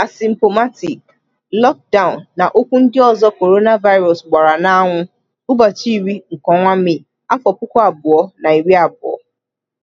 'asymptomatic', 'lockdown' na okwu ndị ọzọ coronavirus gbara n'anwụ ụbọchị iri nke ọnwa Mee, afọ puku abụọ na iri abụọ